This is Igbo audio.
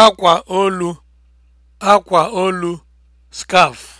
akwa olu akwa olu skaf.